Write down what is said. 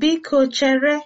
Biko chere!